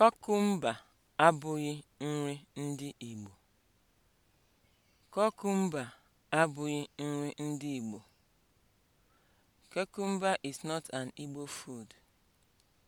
Kukumba abụghị nri ndị Igbo. Cucumber abụghị nri ndị Igbo. Cucumber is not an Igbo food.